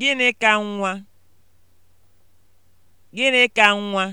Gịnị ka nwa? Gịnị ka nwa?